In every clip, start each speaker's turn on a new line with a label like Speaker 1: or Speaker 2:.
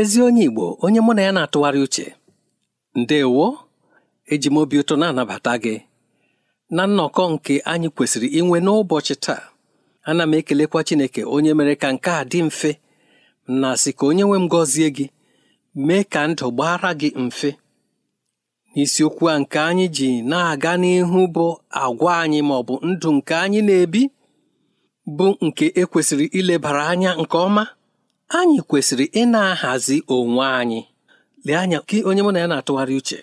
Speaker 1: ezi onye Igbo onye mụ na ya na-atụgharị uche ndewo eji m obi ụtọ na-anabata gị na nnọkọ nke anyị kwesịrị inwe n'ụbọchị taa ana m ekelekwa Chineke onye mere ka nke a dị mfe na sị ka onye nwe m gọzie gị mee ka ndụ gbara gị mfe n'isiokwu a nke anyị ji na-aga n'ihu bụ agwa anyị ma ọ bụ ndụ nke anyị na-ebi bụ nke ekwesịrị ilebara anya nke ọma anyị kwesịrị ị na-ahazi onwe anyị lee anya onye mụ na ya na-atụgharị uche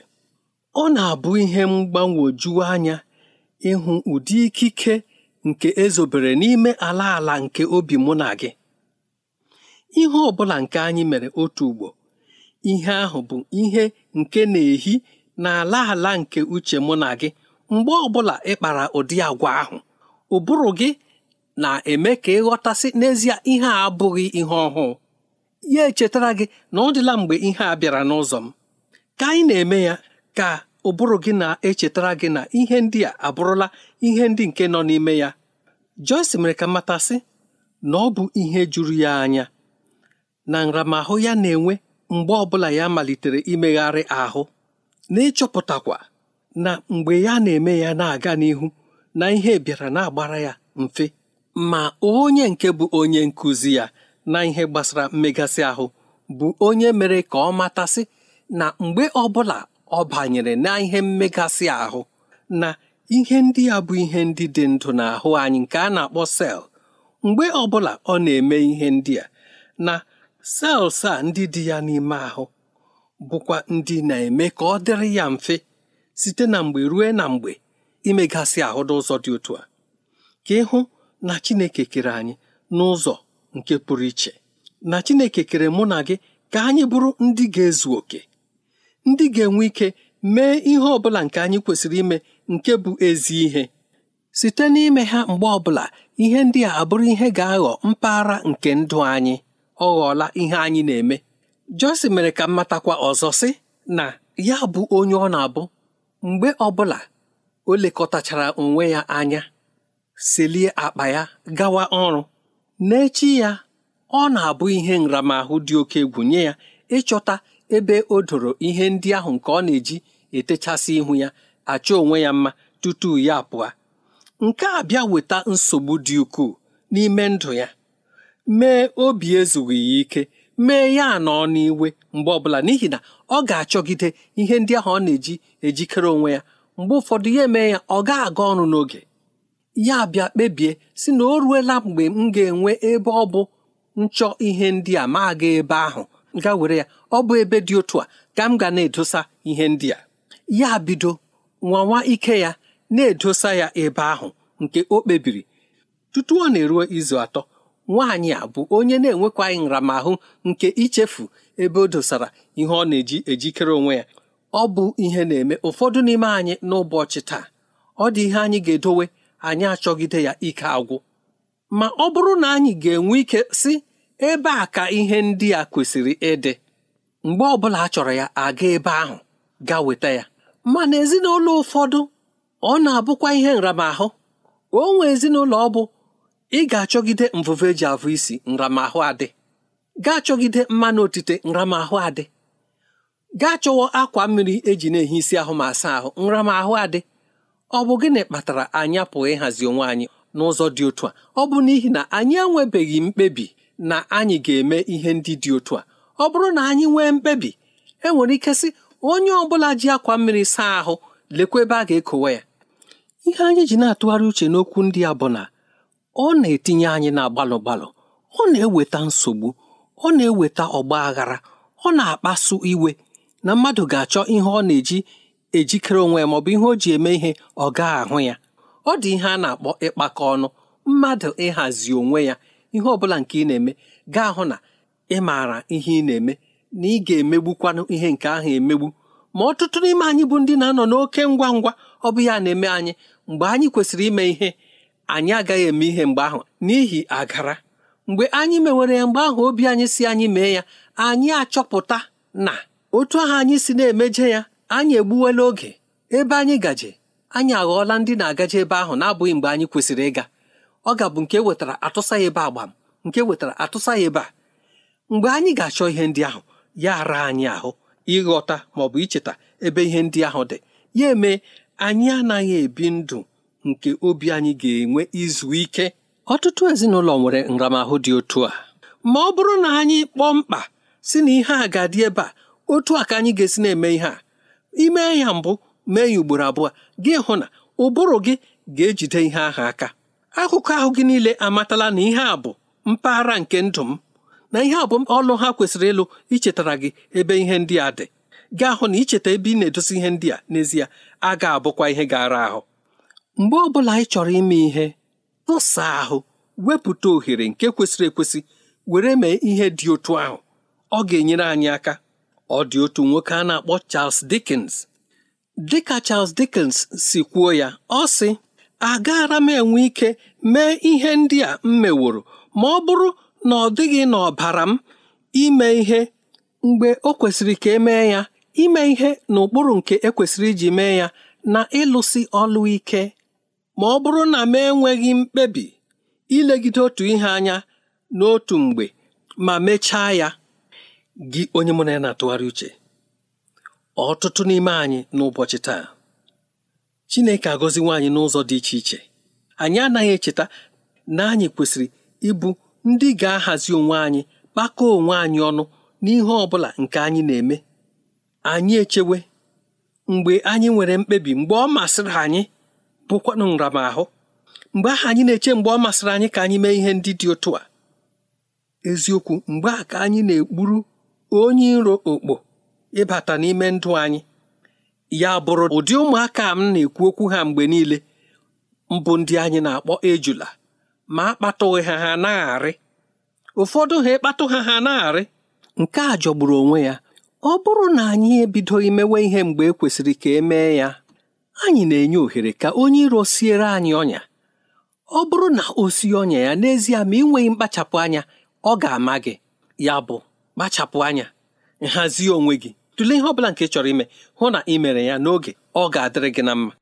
Speaker 1: ọ na-abụ ihe mgbanwoju anya ịhụ ụdị ikike nke ezobere n'ime ala ala nke obi mụ na gị ihe ọ bụla nke anyị mere otu ugbo ihe ahụ bụ ihe nke na-ehi n'ala ala nke uche mụ na gị mgbe ọ bụla ị kpara ụdị agwa ahụ ụbụrụ gị na-eme ka ịghọtasị n'ezie ihe a abụghị ihe ọhụụ ya echetara gị na ọ dịla mgbe ihe a bịara n'ụzọ m ka anyị na-eme ya ka ụbụrụ gị na-echetara gị na ihe ndị a abụrụla ihe ndị nke nọ n'ime ya Joyce mere ka matasị na ọ bụ ihe juru ya anya na nramahụ ya na-enwe mgbe ọbụla ya malitere imegharị ahụ na ịchọpụtakwa na mgbe ya na-eme ya na-aga n'ihu na ihe bịara na-agbara ya mfe ma onye nke bụ onye nkụzi ya na ihe gbasara mmegasị ahụ bụ onye mere ka ọ matasị na mgbe ọbụla ọ banyere na ihe mmegasị ahụ na ihe ndị ya bụ ihe ndị dị ndụ n'ahụ anyị nke a na-akpọ sel mgbe ọbụla ọ na-eme ihe ndị a na sels a ndị dị ya n'ime ahụ bụkwa ndị na-eme ka ọ dịrị ya mfe site na mgbe ruo na mgbe imegasị ahụ n'ụzọ dị otu a ka ịhụ na Chineke kere anyị n'ụzọ nke pụrụ iche na Chineke kere mụ na gị ka anyị bụrụ ndị ga-ezu oke ndị ga-enwe ike mee ihe ọ bụla nke anyị kwesịrị ime nke bụ ezi ihe site n'ime ha mgbe ọbụla ihe ndị a abụrụ ihe ga-aghọ mpaghara nke ndụ anyị ọ ghọọla ihe anyị na-eme Jọsi mere ka m ọzọ sị na ya bụ onye ọ na-abụ mgbe ọbụla o lekọtachara onwe ya anya selie akpa ya gawa ọrụ n'echi ya ọ na-abụ ihe nramahụ dị oke egwu nye ya ịchọta ebe o doro ihe ndị ahụ nke ọ na-eji etechasị ihu ya achọ onwe ya mma tutu ya pụọ nke a bịa weta nsogbu dị ukwuu n'ime ndụ ya mee obi ezughị ya ike mee ya anọọ n'iwe mgbe ọbụla n'ihi na ọ ga-achọgide ihe ndị ahụ ọ na-eji ejikere onwe ya mgbe ụfọdụ ya emee ya ọ ga-aga ọrụ n'oge ya bịa kpebie si na o ruela mgbe m ga-enwe ebe ọ bụ nchọ ihe ndị a ma aga ebe ahụ ga were ya ọ bụ ebe dị otu a ka m ga na-edosa ihe ndị a ya bido nwanwa ike ya na-edosa ya ebe ahụ nke o kpebiri tutu ọ na-eruo izu atọ nwaanyị a bụ onye na-enwekwaghị nramahụ nke ichefu ebe o dosara ihe ọ na-eji ejikere onwe ya ọ bụ ihe na-eme ụfọdụ n'ime anyị n'ụbọchị taa ọ dị ihe anyị ga-edowe anyị achọgide ya ike agwụ ma ọ bụrụ na anyị ga-enwe ike si ebe a ka ihe ndị a kwesịrị ịdị mgbe ọbụla a chọrọ ya aga ebe ahụ ga weta ya mana ezinụlọ ụfọdụ ọ na-abụkwa ihe nramahụ o nwe ezinụlọ ọ bụ ị ga-achọgide mvụvụ eji avụ isi nramahụ adị Gaa chọgide mmanụ otite nramahụ adị ga chọwa akwa mmiri eji na-ehi isi ahụ ma asa ahụ nramahụ adị ọ bụ gịnị kpatara anyị apụghị ịhazi onwe anyị n'ụzọ dị otu a ọ bụ n'ihi na anyị enwebeghị mkpebi na anyị ga-eme ihe ndị dị otu a ọ bụrụ na anyị nwee mkpebi e nwere ike sị onye ọ bụla ji akwa mmiri saa ahụ lekwa ebe a ga-ekowe ya ihe anyị ji na-atụgharị uche n'okwu ndị a bụ na ọ na-etinye anyị na gbalụ gbalụ ọ na-eweta nsogbu ọ na-eweta ọgba aghara ọ na-akpasu iwe na mmadụ ga-achọ ihe ọ na-eji ejikere onwe ya maọbụ ihe o ji eme ihe ọ gaa ahụ ya ọ dị ihe a na-akpọ ịkpakọ ọnụ mmadụ ịhazi onwe ya ihe ọ bụla nke ị na-eme gaa hụ na ị maara ihe ị na-eme na ị ga-emegbukwanụ ihe nke ahụ emegbu ma ọtụtụ n'ime anyị bụ ndị na-anọ n'oke ngwa ngwa ọ bụ ya na-eme anyị mgbe anyị kwesịrị ime ihe anyị agaghị eme ihe mgbe ahụ n'ihi agara mgbe anyị mewere ya mgbe ahụ obi anyị si anyị mee ya anyị achọpụta na otu ahụ anyị si na-emeje ya anyị egbuwela oge ebe anyị gaje anyị aghọọla ndị na-agaje ebe ahụ na-abụghị mgbe anyị kwesịrị ịga ọ ga-abụ nke wetara atụsa ya ebe agbam nke wetara atụsa ya ebe a mgbe anyị ga-achọ ihe ndị ahụ ya ara anyị ahụ ịghọta ma ọ bụ icheta ebe ihe ndị ahụ dị ya eme anyị anaghị ebi ndụ nke obi anyị ga-enwe izu ike ọtụtụ ezinụlọ nwere nramahụ dị otu a ma ọ bụrụ na anyị kpọọ mkpa si na ihe a ga-adị ebe a otu a ka anyị ga-esi na-eme ihe a ime ya mbụ mee ya ugboro abụọ gị hụ na ụbụrụ gị ga-ejide ihe ahụ aka akụkọ ahụ gị niile amatala na ihe a bụ mpaghara nke ndụ m na ihe a bụ ọlụ ha kwesịrị ịlụ ichetara gị ebe ihe ndị a dị gị hụ na icheta ebe ị na-edosi ihe ndị a n'ezie a ga-abụkwa ihe gara ahụ mgbe ọ bụla ị chọrọ ime ihe tụsa ahụ wepụta ohere nke kwesịrị ekwesị were mee ihe dị otu ahụ ọ ga-enyere anyị aka ọ dị otu nwoke a na-akpọ Charles Dickens dịka Charles Dickens si kwuo ya ọ sị agaara m enwe ike mee ihe ndị a m meworo ma ọ bụrụ na ọ dịghị n'ọbara m ime ihe mgbe o kwesịrị ka emee ya ime ihe n'ụkpụrụ nke ekwesịrị iji mee ya na ịlụsi ọlụ ike ma ọ bụrụ na m enweghị mkpebi ilegide otu ihe anya n'otu mgbe ma mechaa ya gị onye mụ na ya na-atụgharị uche ọtụtụ n'ime anyị n'ụbọchị taa Chineke agọziwo anyị n'ụzọ dị iche iche anyị anaghị echeta na anyị kwesịrị ịbụ ndị ga-ahazi onwe anyị kpakọọ onwe anyị ọnụ n'ihe ọ bụla nke anyị na-eme anyị echewe mgbe anyị nwere mkpebi mgbe ọ masịrị anyị bụkwanụ nramahụ mgbe ahụ anyị na-eche mgbe ọ masịrị anyị ka anyị mee ihe ndị dị otu a eziokwu mgbe a ka anyị na-ekpuru onye iro okpo ịbata n'ime ndụ anyị ya bụrụ ụdị ụmụaka m na-ekwu okwu ha mgbe niile mbụ ndị anyị na-akpọ ejula ma akpatụghị ha ha na-arị ụfọdụ ha ịkpatụ ha ha na-arị nke a jọgburu onwe ya ọ bụrụ na anyị ebidoghị mewe ihe mgbe e kwesịrị ka e mee ya anyị na-enye ohere ka onye iro siere anyị ọnya ọ bụrụ na o sie ọnya ya n'ezie ma ị nweghị mkpachapụ anya ọ ga-ama gị ya bụ kpachapụ anya nhazie onwe gị tụlee ihe ọbụla nke ị chọrọ ime hụ na ị mere ya n'oge ọ ga-adịrị gị na mma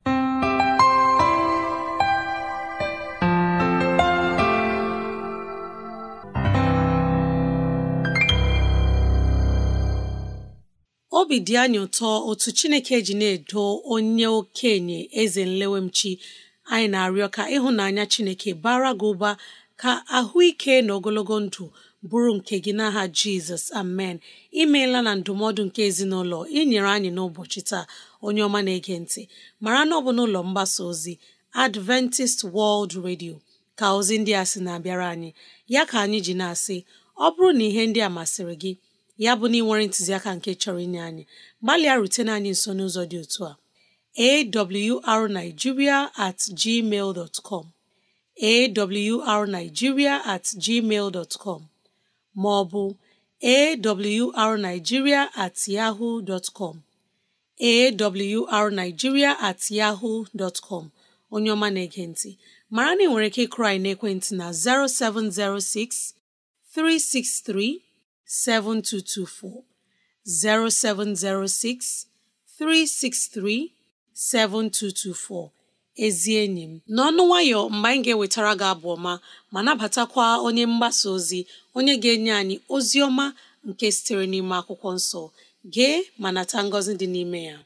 Speaker 2: obi dị anyị ụtọ otu chineke ji na-edo onye okenye eze nlewemchi anyị na-arịọ ka ịhụnanya chineke bara gị ụba ka ahụike na ogologo ndụ bụrụ nke gị n'aha jizọs amen imeela na ndụmọdụ nke ezinụlọ inyere anyị n'ụbọchị taa onye ọma na-ege ntị mara na ọ bụ n'ụlọ mgbasa ozi adventist world radio ka ozi ndị a sị na-abịara anyị ya ka anyị ji na-asị ọ bụrụ na ihe ndị a masịrị gị ya bụ na nwere ntụziaka nke chọrọ inye anyị gbalịa rutena anyị nso n'ụzọ dị otu a awrnigeria at gmail dot com awrnigeria at gmail dot com ma ọ bụ awrnigeria at yahoo dot com at yahoo dot onye ọma na ekenti mara na ị nwere ike ịkrai naekwentị na 0706 363 0706 363 7224 ezi enyi m n'ọnụ nwayọ mgbe anyị ga-ewetara gị abụ ọma ma nabatakwa onye mgbasa ozi onye ga-enye anyị ozi ọma nke sitere n'ime akwụkwọ nsọ gee ma nata ngọzi dị n'ime ya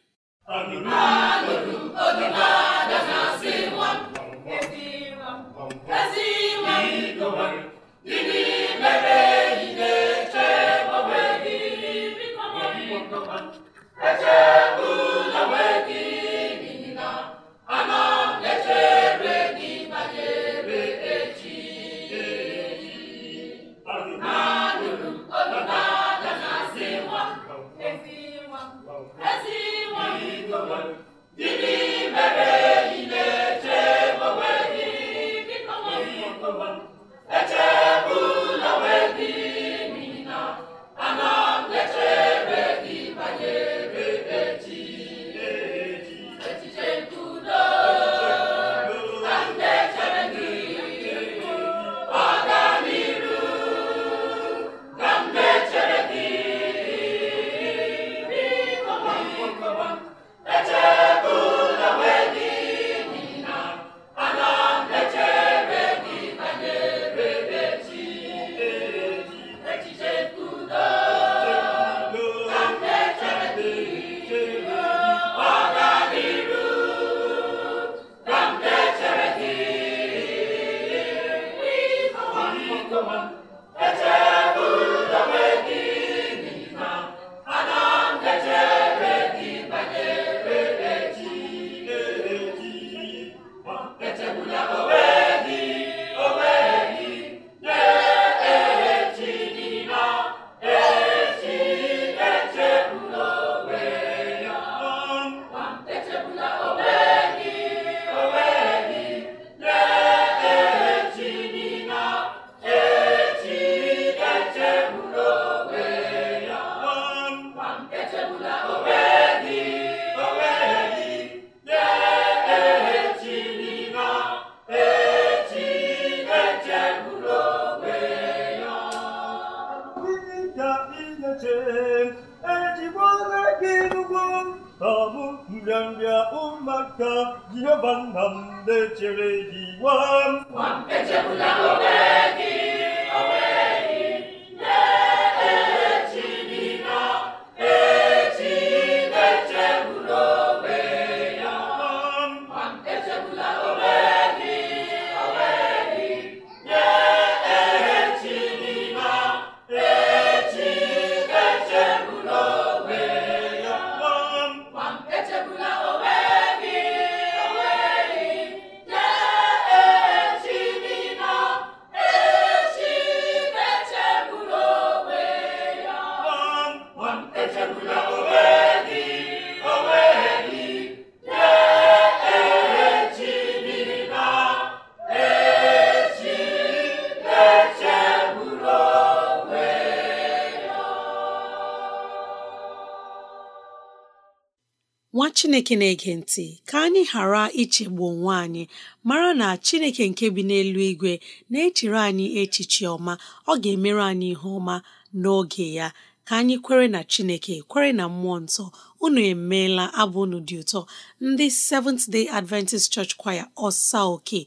Speaker 2: chineke na-ege ntị ka anyị ghara ichegbu onwe anyị mara na chineke nke bi n'elu igwe na-echere anyị echiche ọma ọ ga-emere anyị ihe ọma n'oge ya ka anyị kwere na chineke kwere na mmụọ nsọ unu emeela abụ unu dị ụtọ ndị Seventh Day Adventist Church Choir ọsa oke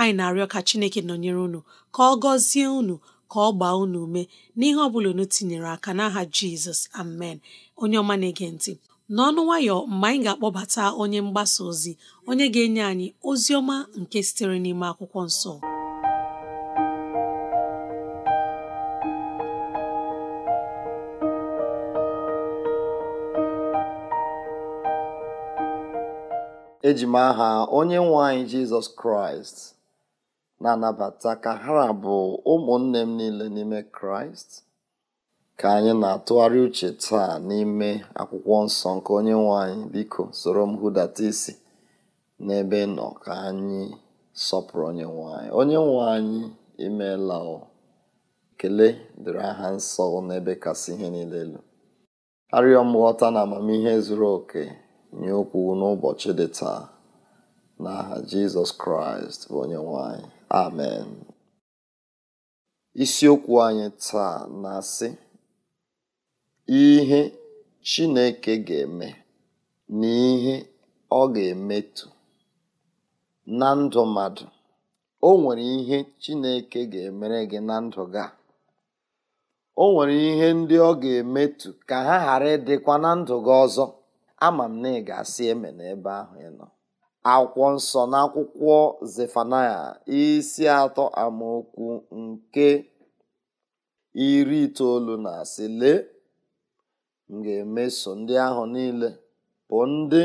Speaker 2: anyị na-arịọ ka chineke nọnyere unu ka ọ gọzie unu ka ọ gbaa unu ume n'ihe ọ bụla unu tinyere aka n'aha Jizọs amen onye ọma na-ege ntị n'ọnụ nwayọ mgbe anyị ga-akpọbata onye mgbasa ozi onye ga-enye anyị ozi ọma nke sitere n'ime akwụkwọ nsọ
Speaker 3: eji m aha onye nwe jizọs kraịst na-anabata ka ha bụ ụmụnne m niile n'ime kraịst Ka anyị na-atụgharị uche taa n'ime Akwụkwọ Nsọ nke nwe anyị, biko soro m hụdata isi n'ebe nọ ka anyị sọpụrụ Onyenwe anyị. nwe anyị imeela o. dịrị aha nsọ n'ebe kasị ihe niile elu. Arịọ m ghọta na amamihe zuru oke nye okwu n'ụbọchị dị taa n'aha Jizọs Kraịst bụ nwanyị. Amen. Isiokwu anyị taa na-asị ihe Chineke ga-eme na ihe ọ ga-emetụ na ndụ mmadụ. O nwere ihe Chineke ga-emere gị na ndụ gị a. O nwere ihe ndị ọ ga-emetụ ka ha ghara ịdịkwa na ndụ gị ọzọ ama m na ị ga-asị eme n'ebe ahụ ị nọ akwụkwọ nsọ na akwụkwọ Zefanaya isi atọ amaokwu nke iri itoolu na asị lee m ga-emeso ndị ahụ niile bụ ndị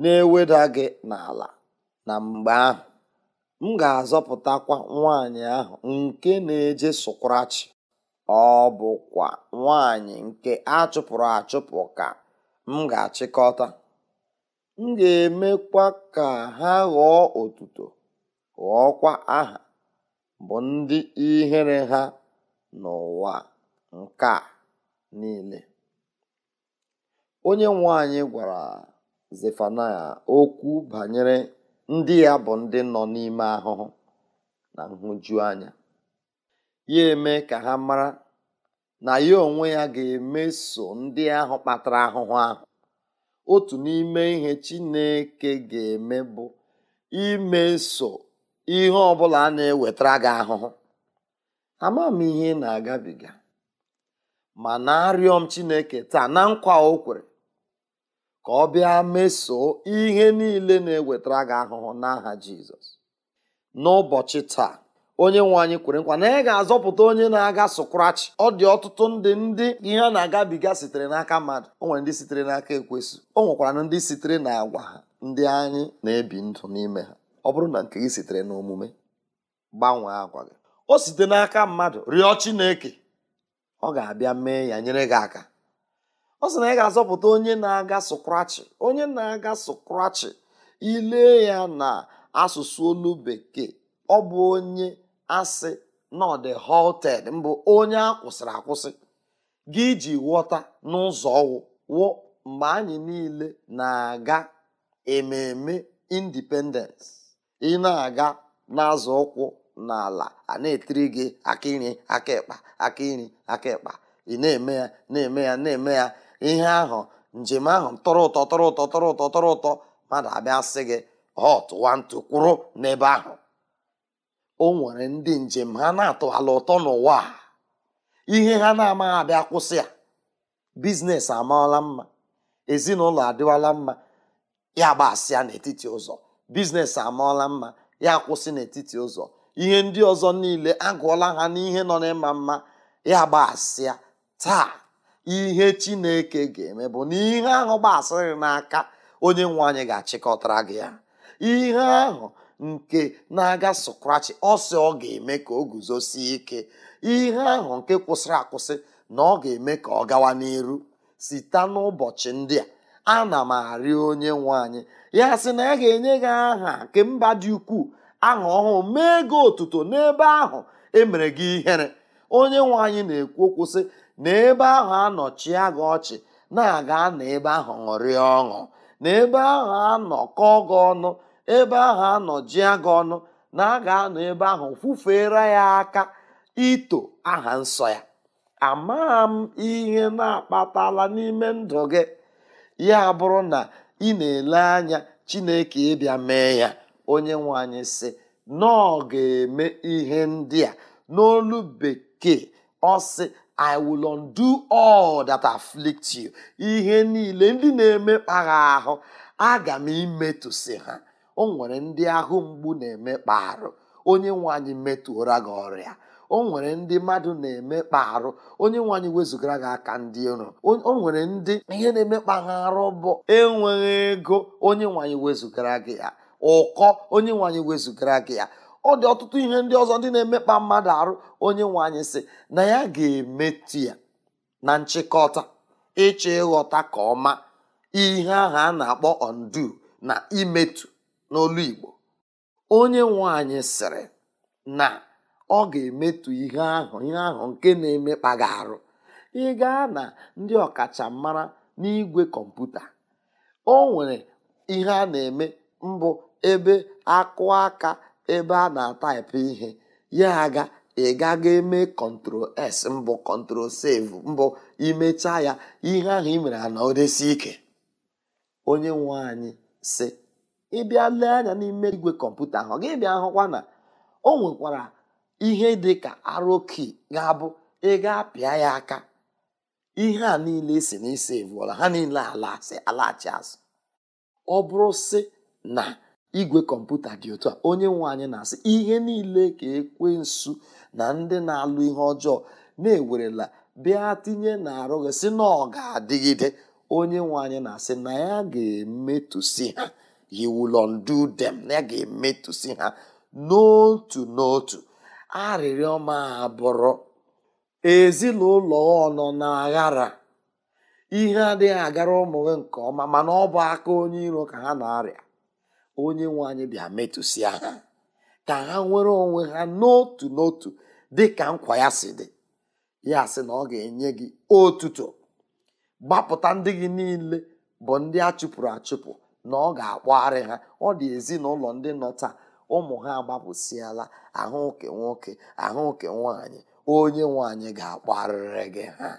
Speaker 3: na-eweda gị n'ala na mgbe ahụ m ga-azọpụtakwa nwanyị ahụ nke na-eje sokwarachi ọ bụkwa nwanyị nke a chụpụrụ achụpụ ka m ga-achịkọta m ga-emekwa ka ha ghọọ otuto ghọọkwa aha bụ ndị ihere ha n'ụwa nke a niile onye nwanyị gwara Zefanaya okwu banyere ndị ya bụ ndị nọ n'ime ahụhụ na nhụjuanya ya eme ka ha mara na ya onwe ya ga-emeso ndị ahụ kpatara ahụhụ ahụ otu n'ime ihe Chineke ga-eme bụ imeso ihe ọ bụla a na-ewetara gị ahụhụ ama m ihe na-agabiga ma na-arịọ m Chineke taa na nkwa o kwere ka ọ bịa mesoo ihe niile na-ewetara gị ahụhụ n'aha jizọs n'ụbọchị taa onye nwe anyị kwere nkwa na ị ga-azọpụta onye na-aga sụkrachi ọ dị ọtụtụ ndị ndị ihe a na-agabiga sitere n'aka mmadụ o nwere ndị sitere n'aka ekwesị o nwekwara ndị sitere na agwa ha ndị anyị na-ebi ndụ n'ime ha ọ bụrụ na nke gị sitere n'omume gbanwee agwa gị o site n'aka mmadụ rịọ chineke ọ ga-abịa mee ya nyere gị aka ọ sị na ị ga-azọpụta onye na-aga sụkrachi onye na-aga sụkrachi ile ya na asụsụ olu bekee ọ bụ onye asị nọde halted mbụ onye a kwụsịrị akwụsị gị ji ghọta n'ụzọ ọwụ wụ mgbe anyị niile na-aga ememe independence ị na-aga n'azụ ụkwụ n'ala a na-etiri gị aka iri aka ịkpa aka iri aka ịkpa ị na-eme ya na-eme ya na-eme ya ihe ahụ njem ahụ tọrọ ụtọ tọrọ ụtọ tọrọ ụtọ tọrọ ụtọ mmadụ abịa sị gị họt wantu kwụrụ n'ebe ahụ o nwere ndị njem ha na ala ụtọ n'ụwa ihe ha na-amaghị abịa kwụsị ya biznes amaala mma ezinụlọ adịwala mma ya gbasịa n'etiti ụzọ biznes amaala mma ya kwụsị n'etiti ụzọ ihe ndị ọzọ niile agụọla ha n'ihe nọ n'ịma mma ya gbasịa taa ihe chineke ga-eme bụ na ihe ahụ gbasịrị n'aka onye nwe anyị ga-achịkọtara gị ya ihe ahụ nke na-aga sokrachi ọsọ ọ ga-eme ka o guzosie ike ihe ahụ nke kwụsịrị akwụsị na ọ ga-eme ka ọ gawa n'iru site n'ụbọchị ndị a ana m arịọ onye nwe anyị ya sị na ya ga-enye gị aha nke mba dị ukwuu aha ọhụụ mee gị otuto n'ebe ahụ emere gị ihere onye nwe anyị na-ekwu okwu sị n'ebe ebe ahụ anọchie gị ọchị na-aga n'ebe ebe ahụ ṅụrịa ọṅụ n'ebe ahụ anọ kọọ gị ọnụ ebe ahụ anọjia gị ọnụ na aga anọ ebe ahụ fufere ya aka ito aha nsọ ya amaghị m ihe na-akpatala n'ime ndụ gị ya bụrụ na ị na-ele anya chineke ịbịa mee ya onye nwe anyị sị na ọ ga-eme ihe ndị a n'olu bekee ọ sị I will undo all that afflict you. ihe niile ndị na-emekpa ahụ aga m imetụsị ha o nwere ndị ahụ mgbu na-emekpa arụ onye nwe anyị metụra gị ọrịa o nwere ndị mmadụ na-emekpa arụ onye nwe wezụgara gị aka ndị iro o nwere ndị ihe na-emekpa ha arụ bụ enweghị ego onye nwanyị wezụgara gị ya ụkọ onye nwanyị wezụgara gị ya ọ dị ọtụtụ ihe ndị ọzọ ndị na-emekpa mmadụ arụ onye nwe anyị sị na ya ga-emetụ ya na nchịkọta ịchọ ịghọta ka ọma ihe ahụ a na-akpọ ondu na imetu n'olu onye nwanyị sịrị na ọ ga-emetụ ihe ahụ ihe ahụ nke na-emekpa ga arụ ị gaa na ndị ọkachamara n'igwe kọmputa o nwere ihe a na-eme mbụ ebe akụ aka ebe a na-ataịpụ ihe ya aga ị gaga eme kọntrol s mbụ kọntrol save mbụ imecha ya ihe ahụ ị mere ana odesi ike onye nwe anyị si ịbịa lee anya n'ime igwe kọmputa ahụ ọ ga ebi hụkwa na o nwekwara ihe dị ka aroki ga-abụ ịga apịa ya aka ihe a niile e si na ise vụọla ha niile alaghachi azụ ọ bụrụ si na igwe kọmputa dị otu a onye nwe anyị na-asị ihe niile ka ekwensu na ndị na-alụ ihe ọjọọ na-ewerela bịa tinye na arụ gị sị na ọ ga-adịgide onye nwe anyị na-asị na ya ga-emetụsi ha yiwulondudem na ya ga-emetụsi ha n'otu n'otu arịrịọ ma abụrụ ezinụlọ ọnọ na aghara ihe adịghị agara ụmụ gị nke ọma mana ọ bụ aka onye iro ka ha na-arịa onye nwe anyị bịa metụsịa ha ka ha nwere onwe ha n'otu n'otu dị ka nkwa ya si dị ya sị na ọ ga-enye gị otuto gbapụta ndị gị niile bụ ndị a chụpụrụ achụpụ na ọ ga-akpọgharị ha ọ dị ezinụlọ ndị nọ taa ụmụ ha agbapụsịala ahụke nwoke ahụke nwanyị onye nwanyị ga-akpọgharịrị gị ha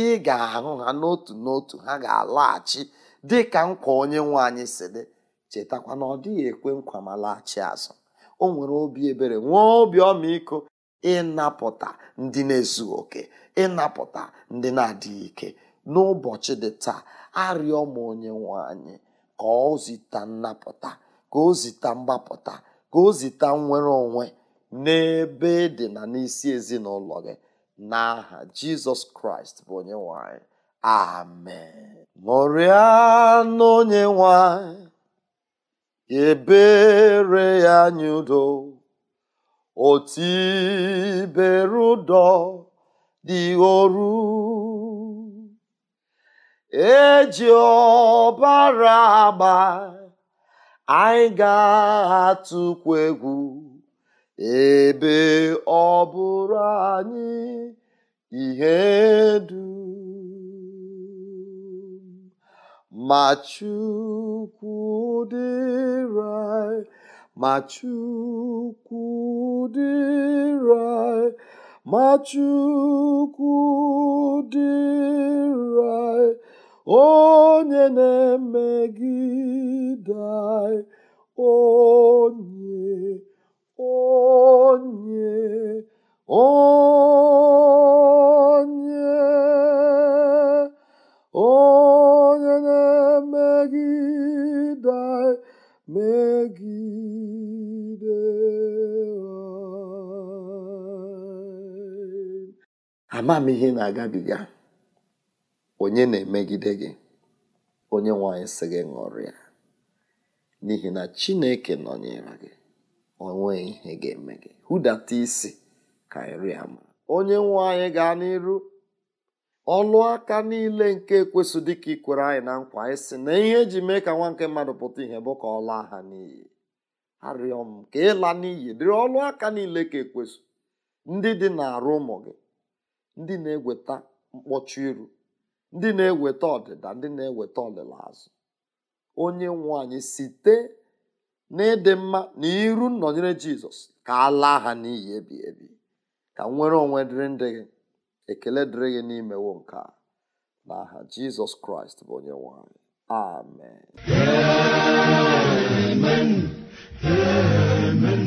Speaker 3: ị ga-ahụ ha n'otu n'otu ha ga-alaghachi dị ka nkwa onye nwaanyị si dị chetakwa na ọ dịghị ekwe nkwa ma laghachi azụ o nwere obi ebere nwee obi ọmịiko ịnapụta ndị na-ezughị oke ịnapụta ndị na-adịghị ike n'ụbọchị dị taa arịọ m onye nwe anyị ka ọ zita nnapụta ka o zita mgbapụta ka o zita nnwere onwe n'ebe dị na n'isi ezinụlọ gị n'aha jizọs kraịst bụ onye nwanyị amen ṅụrịa n'onye nwanyị ebere ya nye udo otibere ụdọ dị oru eji ọbara agba anyị ga-atụkwu egwu ebe ọ anyị ihe du ma Chukwu dịrị anyị ma Chukwu dịrị anyị ma Chukwu dịrị anyị onye na-emegide anyị onye onye onye
Speaker 1: onye megide
Speaker 3: m ihe na-agabiga onye na-emegide gị onye nwanyị sị gị ṅụrịa n'ihi na chineke nọnyere gị onwe ihe ga-eme gị hụdata isi ka ịrịa. onye nwe gaa n'iru ọlụ aka niile nke ekwesụ dịka ikwere anyị na nkwa anyị sị na ihe eji mee ka nwa nke mmadụ pụta ihe bụ ka ọ laa ha n'iyi arịọ m ka ịla n'iyi dịrị ọlụ aka niile ka ekwesụ ndị dị na-arụ ụmụ gị ndị na-eweta mkpọchi iru ndị na-eweta ọdịda ndị na-eweta ọlịla azụ onye nwe anyị site n'ịdị mma na iru nnọnyere jizọs ka a laa ha n'iyi ebi ebi ka nwere onwe dịrị ndị gị ekele dịrị gị n'imewo nke a n'aha jizọs kraịst bụ onye nwanyị amen amen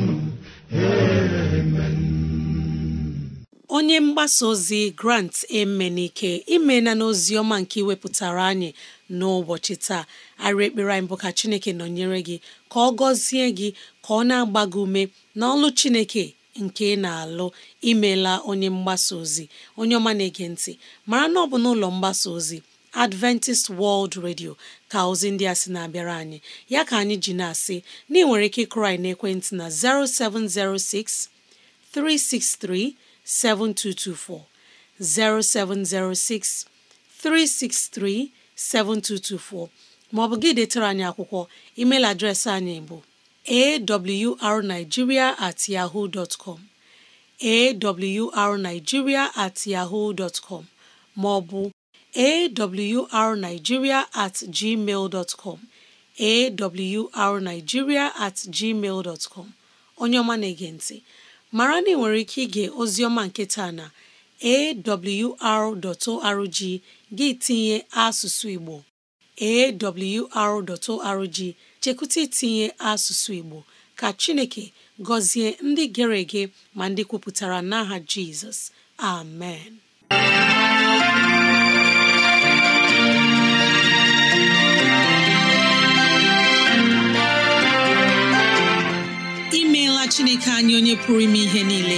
Speaker 2: onye mgbasa ozi grant emenike imena n'ozi ọma nke iwepụtara anyị n'ụbọchị taa arị ekpere anyị bụ ka chineke nọnyere gị ka ọ gọzie gị ka ọ na-agba gị ume n'ọlụ chineke nke ị na-alụ imela onye mgbasa ozi onye ọma na-ege ntị mara na ọ bụ n'ụlọ mgbasa ozi Adventist World Radio ka ozi ndị a sị na-abịara anyị ya ka anyị ji na-asị na ị nwere ike na-ekwentị na 0706 363 7224 0706 363 7224 ma ọ bụ gị detere anyị akwụkwọ email adreesị anyị bụ awrnigeria at ma ọ com at maọbụ at gmail onye ọma na-ege mara na ị nwere ike ige ozioma nke taa na awr.org gị tinye asụsụ Igbo awr.org chekwụta itinye asụsụ Igbo ka Chineke gọzie ndị gere ege ma ndị kwupụtara n'aha Jizọs amen imeela Chineke anyị onye pụrụ ime ihe niile